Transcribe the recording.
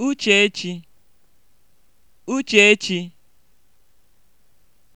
Uchechi, Uchechi